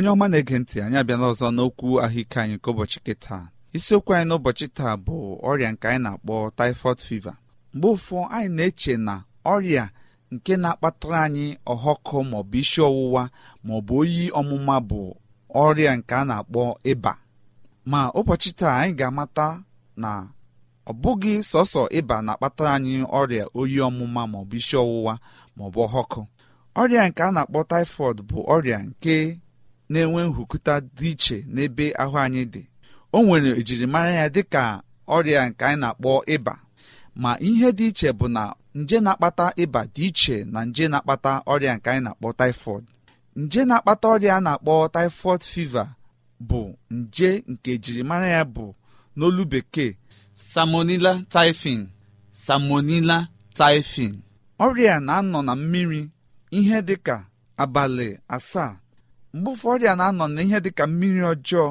onye ọma na-ege ntị anyị abịala ọzọ n'okwu ahụike anyị nke ụbọchị kịta isiokwu anyị n'ụbọchị taa bụ ọrịa nke anyị na-akpọ typhoid fever mgbe ụfọ anyị na-eche na ọrịa nke na-akpatara anyị ọhọkụ maọbụ isi ọwụwa maọbụ oyi ọmụma bụ ọrịa nke a na-akpọ ịba ma ụbọchị taa anyị ga-amata na ọ bụghị sọsọ ịba na-akpatara anyị ọrịa oyi ọmụma maọbụ isi ọwụwa maọbụ ọhọkụ ọrịa nke a na-akpọ typhoid bụ ọrịa nke na-enwe nhụkụta dị iche n'ebe ahụ anyị dị o nwere ejirimara ya dị ka ọrịa nke anyị na-akpọ ịba ma ihe dị iche bụ na nje na-akpata ịba dị iche na nje na-akpata ọrịa nke anyị na-akpọ taịfọd nje na-akpata ọrịa a na-akpọ tifod fiva bụ nje nke ejirimara ya bụ n'olu bekee salmonella typhin samonila typhin ọrịa na-anọ na mmiri ihe dị ka abalị asaa mgbe ụfọdụ a na-anọ n'ihe dịka mmiri ọjọọ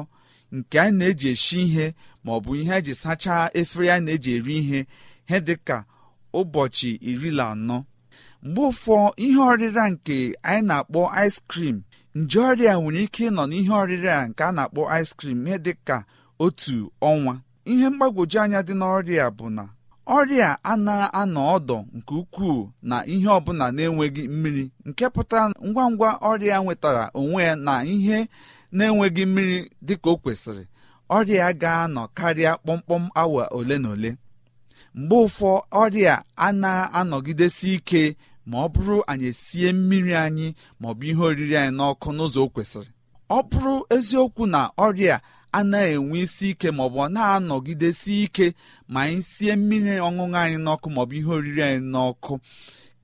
nke anyị na-eji esi ihe ma ọ bụ ihe eji sachaa efere anyị na-eji eri ihe ihe dịka ụbọchị iri na anọ mgbe ụfọ ihe ọrịra nke anyị na-akpọ ice cream nje ọrịa nwere ike ịnọ n'ihe ọrịra nke a na-akpọ ice cream ihe dịka otu ọnwa ihe mgbagwoju anya dị n'ọrịa bụ na ọrịa anaghị anọ ọdọ nke ukwuu na ihe ọbụla na-enweghị mmiri nke pụtara ngwa ngwa ọrịa nwetara onwe ya na ihe na-enweghị mmiri dị ka o kwesịrị ọrịa ga-anọ karịa kpọmkpọm awa ole na ole mgbe ụfọ ọrịa anaghị anọgidesi ike ma ọ bụrụ anyị esie mmiri anyị maọbụ ihe oriri anyị n'ọkụ n'ụzọ kwesịrị ọ bụrụ eziokwu na ọrịa na enwe isi ike maọbụ ọ na-anọgidesi ike ma anyị sie mmiri ọṅụṅụ anyị n'ọkụ maọbụ ihe oriri anyị n'ọkụ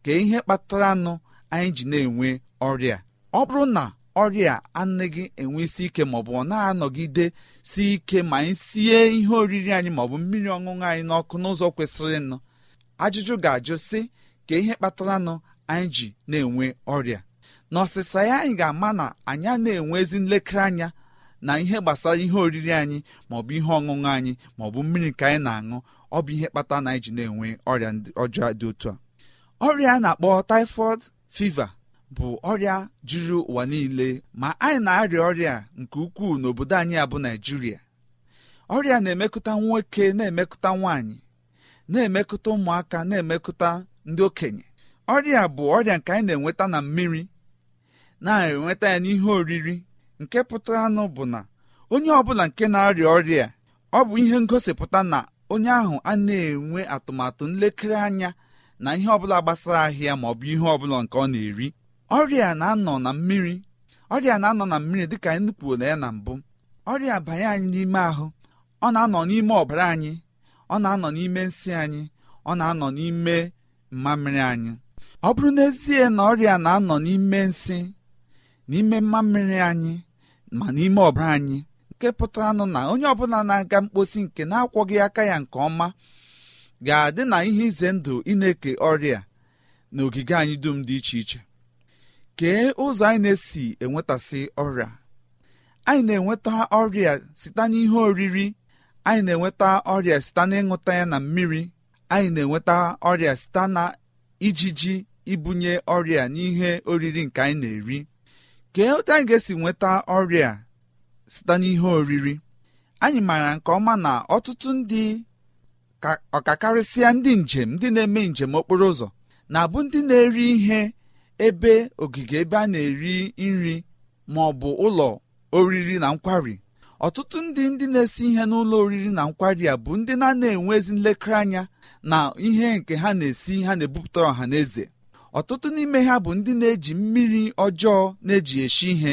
ka ihe kpatara nụ anyị ji na-enwe ọrịa ọ bụrụ na ọrịa anaghị enwe isi ike maọbụ ọ na-anọgide si ike ma anyị sie ihe oriri anyị maọbụ mmiri ọṅụṅụ anyị n'ọkụ n'ụzọ kwesịrị nụ ajụjụ ga-ajụ sị ka ihe kpatara nụ anyị ji na-enwe ọrịa n'ọsịsa ya anyị ga-ama na anyị na-enwe ezi nlekere anya na ihe gbasara ihe oriri anyị maọbụ ihe ọṅụṅụ anyị maọbụ mmiri nke anyị na-aṅụ ọ bụ ihe kpata na anyị ji na-enwe ọrịa ọjọọ dị otu a ọrịa a na-akpọ typhoid fiva bụ ọrịa juru ụwa niile ma anyị na-arịa ọrịa nke ukwuu n'obodo anyị abụ Naijiria ọrịa na-emekụta nwoke na-emekụta nwaanyị na-emekụta ụmụaka na-emekụta ndị okenye ọrịa bụ ọrịa nke anyị na-enweta na mmiri na-enweta ya n'ihe oriri nke pụtara anụ bụ na onye ọbụla nke na-arịa ọrịa ọ bụ ihe ngosipụta na onye ahụ a na-enwe atụmatụ nlekere anya na ihe ọbụla gbasara ahịa ma ọ bụ ihe ọbụla nke ọ na-eri ọrịa na-anọ na mmiri ọrịa na-anọ na mmiri dịka anyị kwuola ya na mbụ ọrịa banye anyị n'ime ahụ ọ na-anọ n'ime ọbara anyị ọ na-anọ n'ime nsị anyị ọ na-anọ n'ime mmamịrị anyị ọ bụrụ n'ezie na ọrịa na-anọ n'ime nsị n'ime mmamịrị anyị ma n'ime ọbara anyị nke pụtara nụ na onye ọbụla na-aga mkposi nke na-akwọghị aka ya nke ọma ga-adị na ihe ize ndụ ị na-eke ọrịa na ogige anyị dum dị iche iche kee ụzọ anyị na-esi enwetasị ọrịa anyị na-enweta ọrịa site n'ihe oriri anyị na-enweta ọrịa site n'ịṅụta ya na mmiri anyị na-enweta ọrịa site na ijiji ibunye ọrịa n'ihe oriri nke anyị na-eri kee otu anyị ga-esi nweta ọrịa site n'ihe oriri anyị maara nke ọma na ọtụtụ ndị ọkakarịsịa ndị njem ndị na-eme njem okporo ụzọ na-abụ ndị na-eri ihe ebe ogige ebe a na-eri nri ma ọ bụ ụlọ oriri na nkwari ọtụtụ ndị ndị na-esi ihe n'ụlọ oriri na nkwari a bụ ndị na-ana enwe ezi nlekere anya na ihe nke ha na-esi ha na-ebupụtara ọha na eze ọtụtụ n'ime ha bụ ndị na-eji mmiri ọjọọ na-eji eshi ihe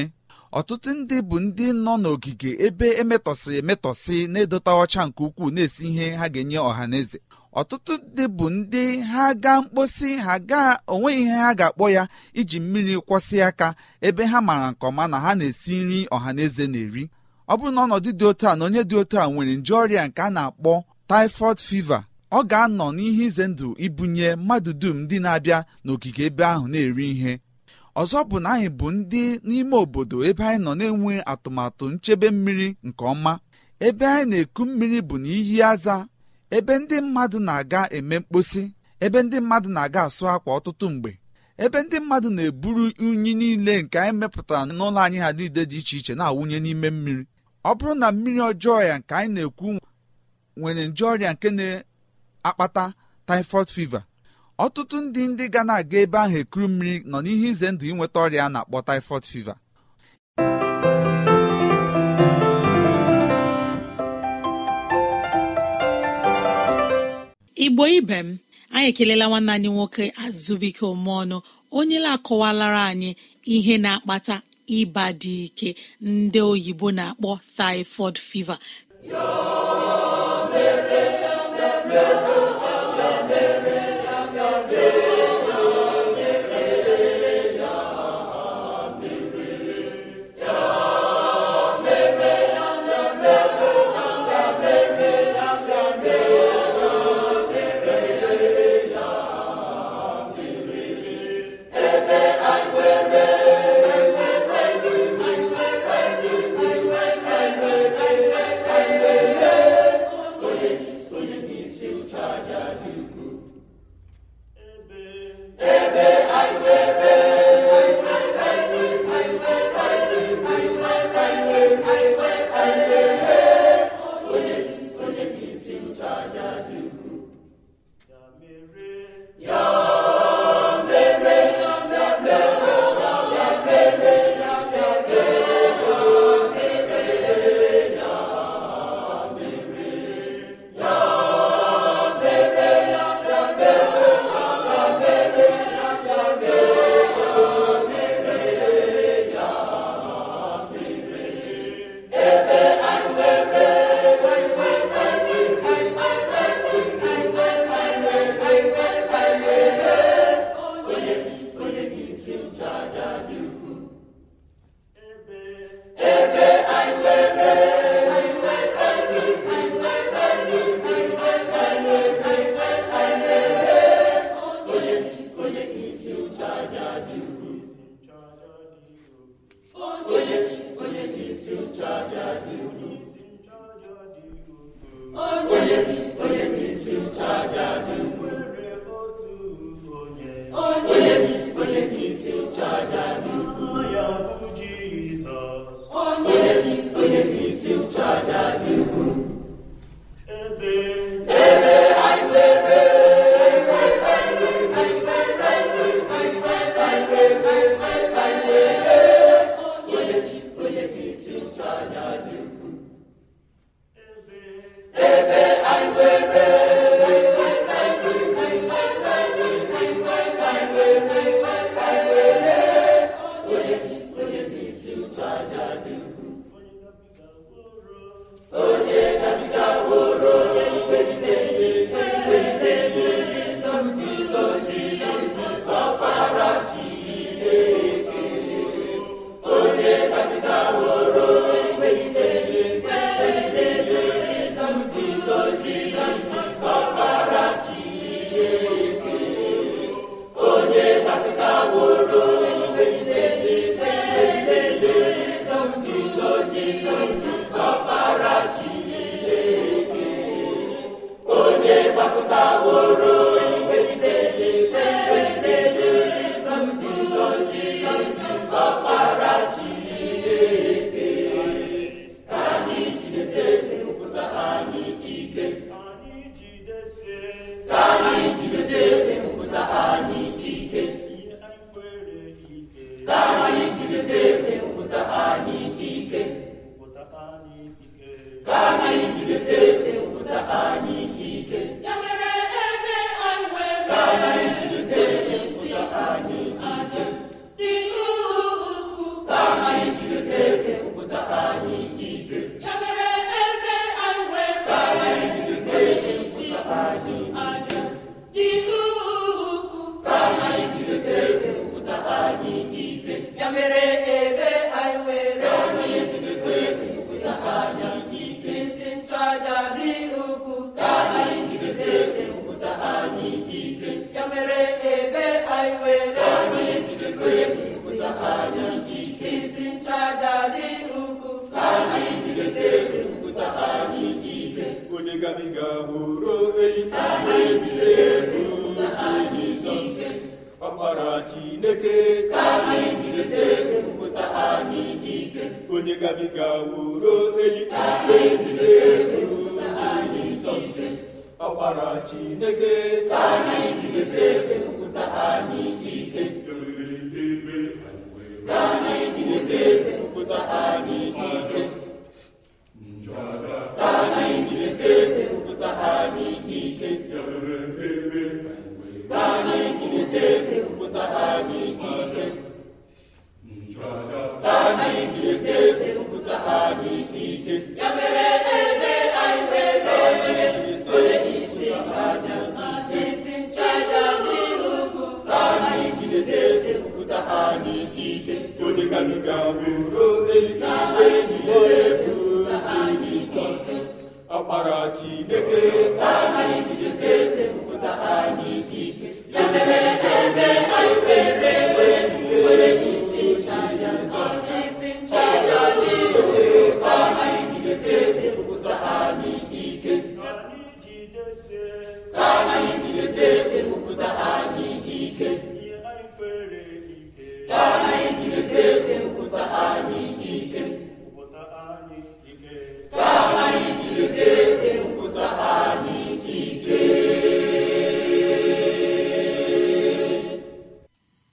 ọtụtụ ndị bụ ndị nọ n'ogige ebe emetọsịrị emetọsị na-edota ọcha nke ukwuu na-esi ihe ha ga-enye ọha na eze ọtụtụ ndị bụ ndị ha gaa mkposi ha gaa onweghị ihe ha ga-akpọ ya iji mmiri kwọsị aka ebe ha maara nke ọma na ha na-esi nri ọha na eze na-eri ọ bụrụ na ọnọdụ dị otu a na onye dị otu a nwere nje ọrịa nke a na-akpọ typhoid fever ọ ga-anọ n'ihe ize ndụ ibunye mmadụ dum ndị na-abịa n'okike ebe ahụ na-eri ihe ọzọ bụ na anyị bụ ndị n'ime obodo ebe anyị nọ na-enwe atụmatụ nchebe mmiri nke ọma ebe anyị na-eku mmiri bụ na aza ebe ndị mmadụ na-aga eme mkposi ebe ndị mmadụ na-aga asụ akwa ọtụtụ mgbe ebe ndị mmadụ na-eburu unyi niile nke anyị mepụtara n'ụlọ anyị ha niile dị iche iche na-awụnye n'ime mmiri ọ bụrụ na mmiri ọjọọ ya nke anyị na-ekwu nwere nje ọrịa nke na akpata typhoid fever ọtụtụ ndị ndị ga na-aga ebe ahụ ekuru mmiri nọ n'ihe ize ndụ inweta ọrịa na-akpọ typhoid fever igbo ibe m anyị ekelela nwanne anyị nwoke azụbike ọnụ onye na-akọwalara anyị ihe na-akpata ịba dị ike ndị oyibo na-akpọ typhoid fever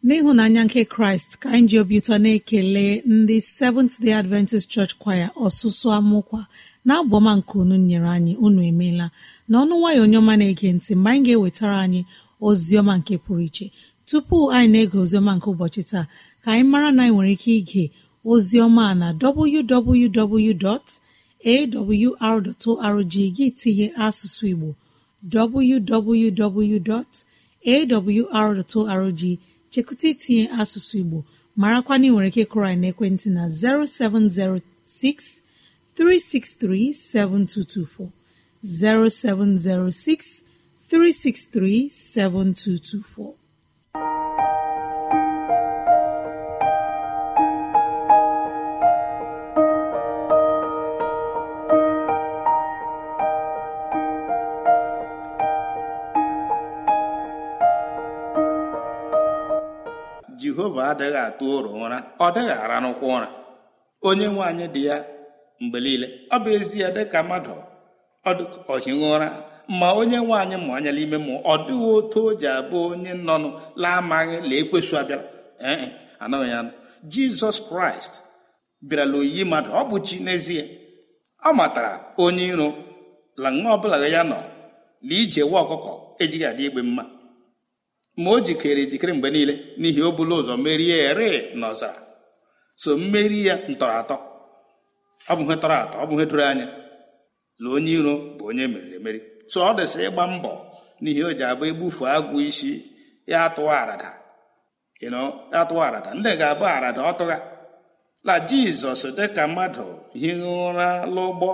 n'ịhụnanya nke kraịst ka anyị ji obi ụtọ na-ekele ndị seventh day adventist church kwaya ọsụsụ amụkwa na abụọma nke unu nyere anyị unu emeela n'ọnụ nwayọ onye ọma na-ege ntị mgbe anyị ga-ewetara anyị ozi ọma nke pụrụ iche tupu anyị na-ege ozi ọma nke ụbọchị taa ka anyị mara na anyị nwere ike ige ozi ọma na www.awr.org gị tinye asụsụ igbo www.awr.org chekụta itinye asụsụ igbo marakwa na ị nwere ike kụrụ anyị n'ekwentị na 0706 363 7224 0706 363 7224 jehova adịghị atụ ụrọ ụra ọ dịghị ara n'ụkwụ ụra onye nwaanyị dị ya mgbe niile ọ bụ ezie dịka mmadụ ọhighị ụra ma onye nwaanyị anyị ma anya n'ime mmụọ ọ dịghị otu o ji abụ onye nọnụ laa amaghị la ekwesu abịala ee e, anọghị ya jizọs kraịst bịarala oyiyi mmadụ ọ bụ chi n'ezie ọ matara onye iro la nwa ọbụla ya nọ na ije nwa ọkụkọ ejighị adị igbe mma ma o jikere ejikere mgbe niile n'ihi o bụla ụzọ merie ere n'ọzara so mmeri ya ntọrọ atọ ọ bụ ihe tọrọ atọ ọ bụ ihe doro anya na onye iro bụ onye meriri emeri so ọ dịsị ịgba mbọ n'ihi o ji abụ egbufu agwụ isi ya atụwa arada atụwa arada ndị ga-abụ arada ọtụgha na jizọs dịka mmadụ hie ụra l'ụgbọ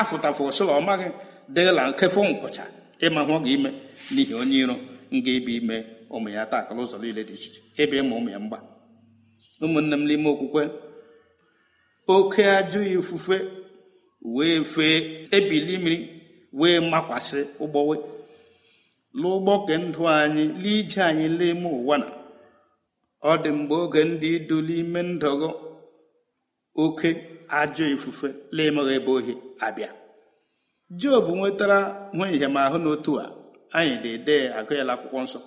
afụtafụ osoro ọmaghị dịla nkefụ nkụcha ịma hụ gị ime n'ihi onye iro nga ịbụ ime ụmụ ya taa akala ụzọ niile dị iche iche ịbịa ịma ụmụ ya mgba ụmụnne m n'ime okwukwe oke ajọ ifufe wee fee ebili mmiri wee makwasị ụgbọwe lụụgbọ ke ndụ anyị lee anyị n'ime ụwa na ọ dị mgbe oge ndị iduli ime ndọgọ oke ajọ ifufe laemeghị ebe ohi abịa job nwetara nwa ihe ahụ n'otu a anyị na-ede agụ akwụkwọ nsọ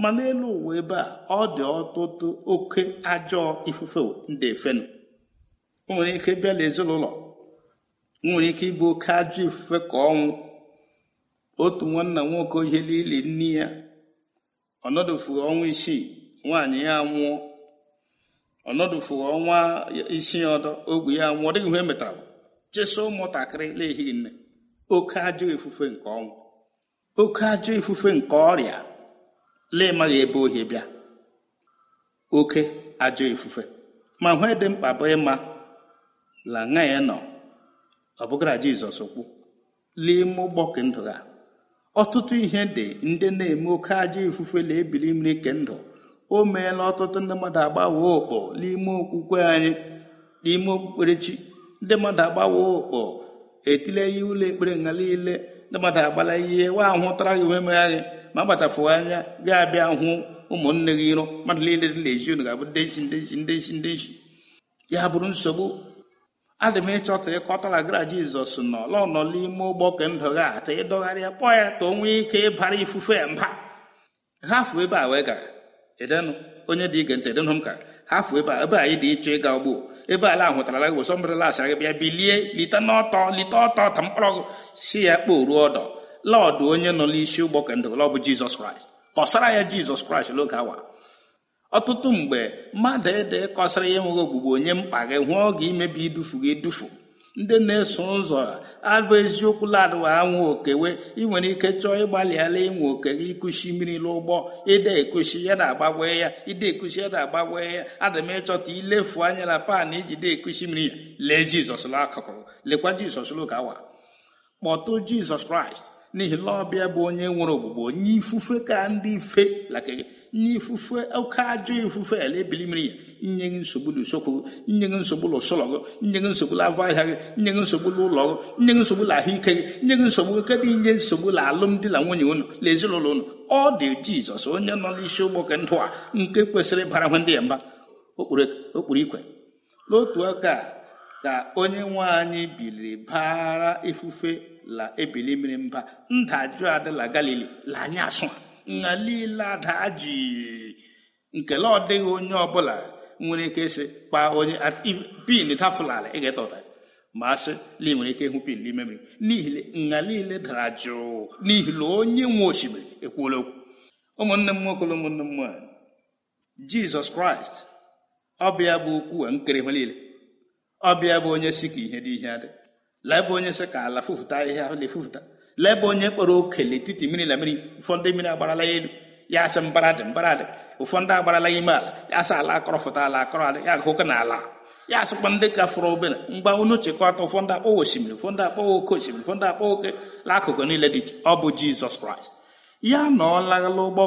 ma n'elu ụwa ebe a ọ dị ọtụtụ oke ajọ ifufe ndị fenu nwere ike bịa n'ezinụlọ nwere ike ịbụ oke ajọ ifufe ka ọnwụ otu nwanna nwoke ihe niile nne ya ọnọdụfuru ọnwa isii nwaanyị ya nwụọ ọnọdụfuru ọnwa isii ọdọ ogwe ya nwụọ ọ dịghị ihe e metara chesa ụmụntakịrị na-ehighị nne oke ajọ ifufe nke ọnwụ oke ajọ ifufe nke ọrịa lee maghị ebe ohi bịa oke ajọ ifufe ma hụ dị mkpa bụ ịma la ṅa ya nọ ọ bụgara Jizọs kwu n'ime gbọke ndụ ha ọtụtụ ihe dị ndị na-eme oke ajọ ifufe na-ebili mmiri ke ndụ o meela ọtụtụ ndị mmadụ agbawo okpo n'ime okwukwe anyị n'ime okpukperechi ndị mmadụ agbawo okpo etile ihe ụlọ ekpere nga niile ndị mmadụ agbala ihe wa ahụtara gị wee megha ma agbachapụghị anya ga-abịa hụ ụmụnne gị iro mmadụ niile dị na-eji unu ga-abụ ndị nshi ndị nshi ndị ya bụrụ nsogbu adị m ịchọta ịkọtala gara jizọs n'ọlọ nọ n'ime ụgbọ ka ndọgha ata ịdọgharịa kpọọ ya ka onwe ike ịbara ifufe ya mba hafu ebe a wee gara edenụ onye dị ige ntị edenụ m ka hafu ebe a ebe anyị dị ịchọ ịga ugbo ebe ala hụtara gị bụ sọmbere lasị gị bịa bilie lite n'ọtọ lite ọtọ ta mkpọrọ gị si ya ruo ọdọ lọdụ onye nọ n'isi ụgbọ kandụl ọ bụ jizọs kraịst kọsara ya jizọs kraịst n'oge awa ọtụtụ mgbe mmadụ ede kọsara ya enweghị ogbugbo onye mkpa gị hụọ oge imebi idufu gị edufu ndị na-eso ụzọ abụ eziokwu ladụwa anwụ okewe ị nwere ike chọọ ịgbalịala ịnwe oke gị ịkụchi mmiri n'ụgbọ ịda ekuchi ya na-agbagwe ya ịda ekuchi ya na-agbagwe ya ada ịchọta ilefu anya na pan iji de ekuchi mmiri ya lee jizọs n'akụkụ lekwa jizọs n'oge awa kpọtụ jizọs kraịst n'ihi na bụ onye nwere ogbugbo onye ifufe ka ndị ife lakịrị nye ifufe oke ajọ ifufe ala ebili mmiri ya nye gị nsogbu n'usokwu nye gị nsogbu n'ụsụlọ gị nye gị nsogbu n'avọ ahịa gị nye gị nsogbu n'ụlọ gị nye gị nsogbu n'ahụike gị nye gị nsogbu kedụ inye nsogbu alụmdi na nwunye unu na ezinụlọ unu ọ dị jizọs onye nọ n'isi ụgbọ nke ndụ a nke kwesịrị ịbara ndị ya mba okpuru ikwe n'otu aka ka onye nwe anyị biliri baara ifufe la ebili mmiri mba ndajụ adịla galili la anyị asụ na niile ada ji nkele ọ dịghị onye ọbụla nwere ike ịsị kpaa onye pin tafụlala ị ga-eta ụta ma asị na ị nwere ike ịhụ pin n'ime mmiri n'ihi nha niile dara jụụ n'ihi na onye nwe osimiri ekwuola okwu ụmụnne m nwoke ụmụnne m nwanyị jizọs kraịst ọbịa bụ ya okwu a nkere ihe niile ọbịa bụ onye si ka ihe dị ihe dị lee bụ onye si ka ala fụfụta ihe ahụ na-efufụta lee bụ onye kpọrọ oke n'etiti mmiri na mmiri ụfọdụ mmiri agbarala ya elu ya asị mbara dị mbara dị ụfọdụ agbarala ya ime ala ya asị ala akọrọfụta ala akọrọ ala ya agụkọ na ala ya asịkwa ndị ka fọrọ obere mgba unu chịkọta ụfọdụ akpọwa osimiri ụfọdụ akpọwa oke osimiri ụfọdụ akpọwa oke akụkụ niile dị iche ọ bụ jizọs kraịst ya na ọ laghala ụgbọ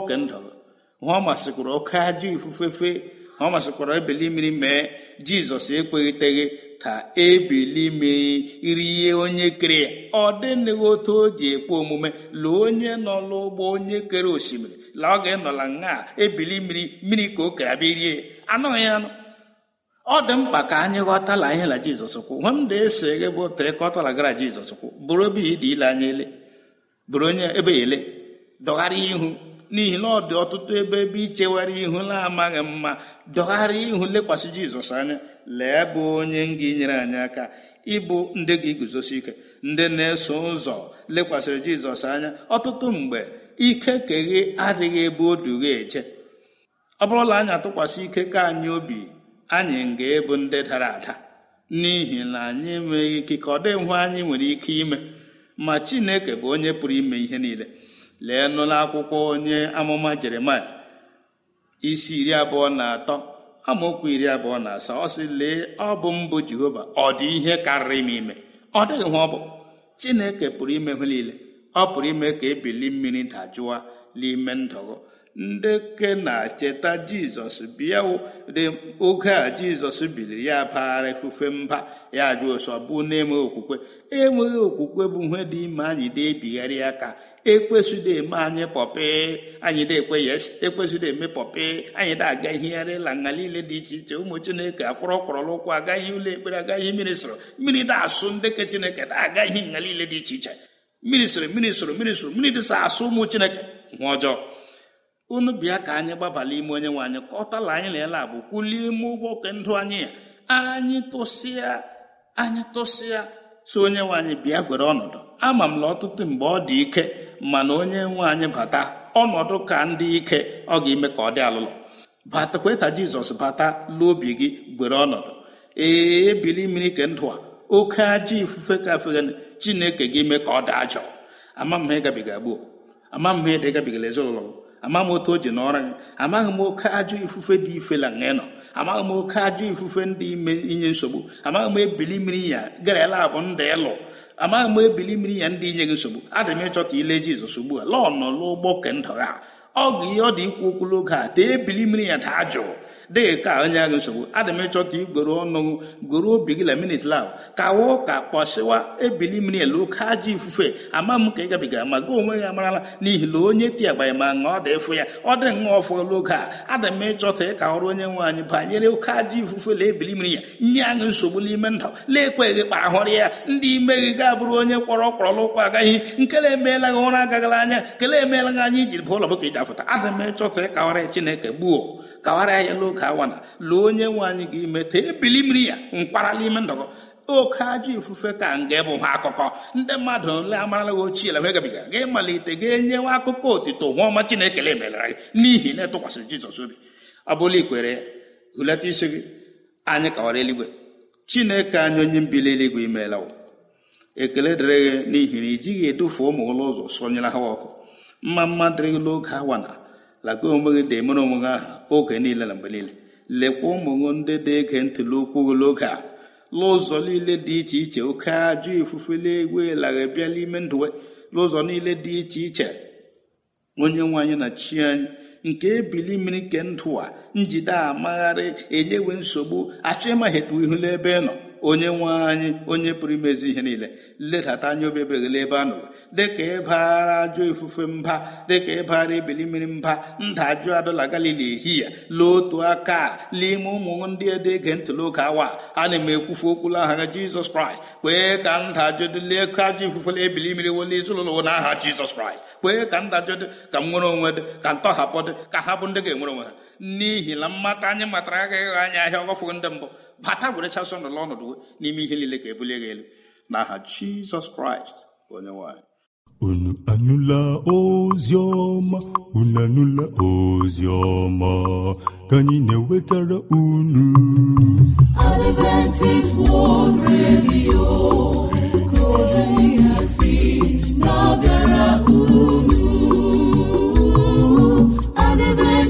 hụ ọ masịkwuru oke ajọ ifufe fee ọ masịkwara ebili mmiri mee jizọs ekpeghiteghị ka ebili mmiri rie onye kere ya ọ dịnịghị otu o ji ekpe omume lụọ onye nọ n'ụgbọ onye kere osimiri la ọ ga-enọla na ebili mmiri mmiri ka o kere abịa rie anọghị anụ ọ dị mkpa ka anyị ghọtala ihe la jizọs kwụ nwa m da-eso ghe bụ otu ka ọ jizọs kwụ bụrụ ebe ya ile anya ele bụrụ onye ebe ele dọgharịa ihu n'ihi na ọ dị ọtụtụ ebe ebe ichewara ihu na-amaghị mma dọgharịa ihu lekwasị jizọs anya lee bụ onye nga enyere anyị aka ịbụ ndị gị guzosi ike ndị na-eso ụzọ lekwasịrị jizọs anya ọtụtụ mgbe ike keghe adịghị ebe o dughe eche ọ bụrụla anyị atụkwasị ike ka anyị obi anyị ga-ebu ndị dara ada n'ihi na anyị enweghị ike ka ọ dịghị anyị nwere ike ime ma chineke bụ onye pụrụ ime ihe niile lee n'ụlọ akwụkwọ onye amụma jeremaya isi iri abụọ na atọ amaokwu iri abụọ na asaa ọ sị lee ọ bụ mbụ jehova ọ dị ihe karịrị m ime ọ dịghị nwa ọ bụ chineke pụrụ ime nwere niile ọ pụrụ ime ka ebili mmiri dajụwa n'ime ndụgụ ndị na cheta jizọs bịa oge a jizọs biliri ya baghara efufe mba ya jụ ụsọ bụ na-enweghị okwukwe enweghị okwukwe bụ ihe dị ime anyị dị ebigharị ya aka ekwesịrị eme anyị pọpị anyị dị ekwe yes ekwesịrị eme pọpị anyị dị aga ihegharị la nga niile dị iche iche ụmụ chineke akpọrọ kwọrọla ụkwụ agaghị ụlọ ekpere agaghị mmiri sụrụ mmiri dị asụ ndị ke chineke na-aga ihe nga niile dị iche iche mmiri sụrụ mmiri sụrụ mmiri sụrụ mmiri dịsa asụ ụmụ chineke nwa ọjọọ unu bịa ka anyị gbabala ime onye nwe anyị kọtala anyị na ele abụ kwulie ime ụgbọ oke ndụ anyị a anyị tụsịa anyị tụsịa so onye nwe anyị bịa gwere ọnọdụ ama m na ọtụtụ mgbe ọ dị ike mana onye nwe anyị bata ọnọdụ ka ndị ike ọ ga-eme ka ọ dị alụlọ batakwa jizọs bata n'obi gị gwere ọnọdụ ee ebili mmiri ke ndụ a oke ajọ ifufe ka chineke gị mee ka ọ daa jọọ ama m gbuo ama m ha ezinụlọ ama m otu o ji n'ọra gị amaghị m oke ajọ ifufe dị ife ifela nọ amaghị m oke ajọ ifufe ndị ime inye nsogbu amaghị m ebili mmiri ya garala abụ ndị ịlụ amaghị m ebili mmiri ya ndị inye gị nsogbu adị m ịchọ ka ile jizọs ugbu a lọọ nọ n'ụgbọ kendụ ha ọ ihe ọ dị ikwu okwu n'oge a tee ebili mmiri ya daa jụụ dị ka onye agụ nsogbu adị m ịchọta igwere ọnụ gwere obi gị la minit lab kawa ụka kpọsịwa ebili mmiri elu oke ajọ ifufe ama m ka ị gabiga ma gị onwe ya amarala n'ihi na onye ti agbanye ma ṅụọ dị ịfụ ya ọ dị ṅụọ fọlụ oge a adị m ịchọta ịka ọrụ onye nwe anyị banyere oke ajọ ifufe la ebili mmiri ya nye agụ nsogbu n'ime ndụ na-ekweghị kpa ahụrụ ya ndị ime gị ga-abụrụ onye kwọrọ kwọrọla ụkwụ agaghị nkele emeela gị ụra agagala anya kele emeela gị anya iji bụ ụlọ bụka iji afụta adị m ịchọta ịka ọrịa chineke gbuo kawara ya n'oke awana na lụọ onye nwe anyị ime meta ebili mmiri ya nkwara n'ime ndọgọ oke ajọ ifufe ka nga bụ ha akụkọ ndị mmadụ ole amaralaghị ochie la wegabiga gị malite gị nyewe akụkọ otito nwa ọma Chineke emelera gị n'ihi na etụkwasịrị Jizọs obi ọ bụla ikwere ya hulata isi gị anyị kawara eluigwe Chineke anyị onye mbili eluigwe imeela ekele dịrị gị n'ihi na i jighị edufe ụmụ ụlọ ụzọ sonyere ha ọkụ mma mma dịrị gị n'oge laka onwe gị na-emere onwe gị aha oge niile na mgbe niile lekwa ụmụṅụ ndị dị ege ntụli okwu gị n'oge a n'ụzọ niile dị iche iche oke ajọ ifufe na lara bịa n'ime ndụ n'ụzọ niile dị iche iche onye nwe anyị na chi anyị nke ebili mmiri nke ndụ a njide amagharị enyewe nsogbu achọ ịmaghị etu ihu n'ebe ị nọ onye nwe anyị onye pụrụ imezi ihe niile ledata anya obi ebere ebe a nụrụ dịka ịbara ajọ ifufe mba dịka ịbara ebili mmiri mba nda ajụ adọla galili ehihie l'otu aka n'ime ụmụ ndị ede ege ntị n'oge awa a na m ekwufu okwulu aha ha jizọs kraịst kwee ka nda ajọdịle leka ajọ ifufe ebili mmiri wole ezinụlọ n'aha jizọs kraịst kwee ka nda ka m nwere onwe dị ka ntọhapụ dị ka ha bụ ndị ga-enwere onwe ha n'ihi na mmata anyị matara agaghị anya ahịa ọgọfụgo ndị mbụ bata were chasọ n'ụlọ ọnọdụ n'ime ihe niile ka ebulie gị elu n'aha jizọs kraịst onye nwanyị unu anụla ozi ọma unu anụla ozi ọma ka anyị na-ewetara unu Adventist World Radio ka ozi na-abịara unu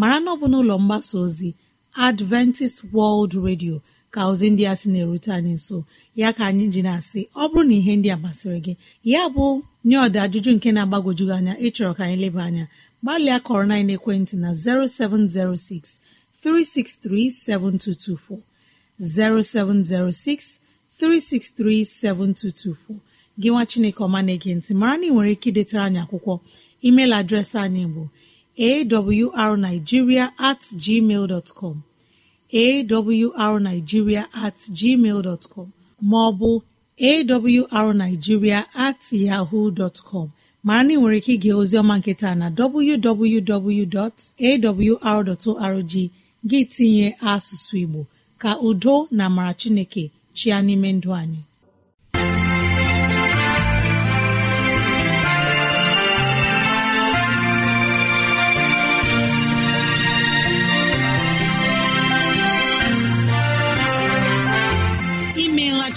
mara na ọ bụ n'ụlọ mgbasa ozi adventist world radio ka ozi ndị a sị na-erute anyị nso ya ka anyị ji na-asị ọ bụrụ na ihe ndị a masịrị gị ya bụ nye ọda ajụjụ nke na-agbagwoju anya ịchọrọ ka anyị leba anya gbalịa kọrọ na ekwentị na 0706 3637224 0706 363 gị nwa Chineke ọma na-ege ntị mara na ị nwere ike idetara anyị akwụkwọ emeil adreesị anyị bụ awrnigeria at gmail dot com awrnigeria at gmail dot com maọbụ awrnigeria at yahoo dot com mara na ị nwere ike ige ozioma nketa na www.awr.org gị tinye asụsụ Igbo ka udo na amara Chineke chia n'ime ndụ anyị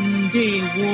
ndewo